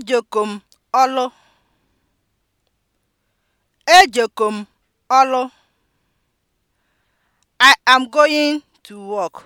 ejokom ọlụ ejokom ọlụ I am going to work.